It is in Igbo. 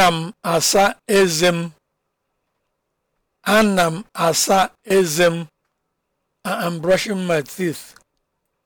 ana m asa eze m ana m asa eze m i am brushing my teeth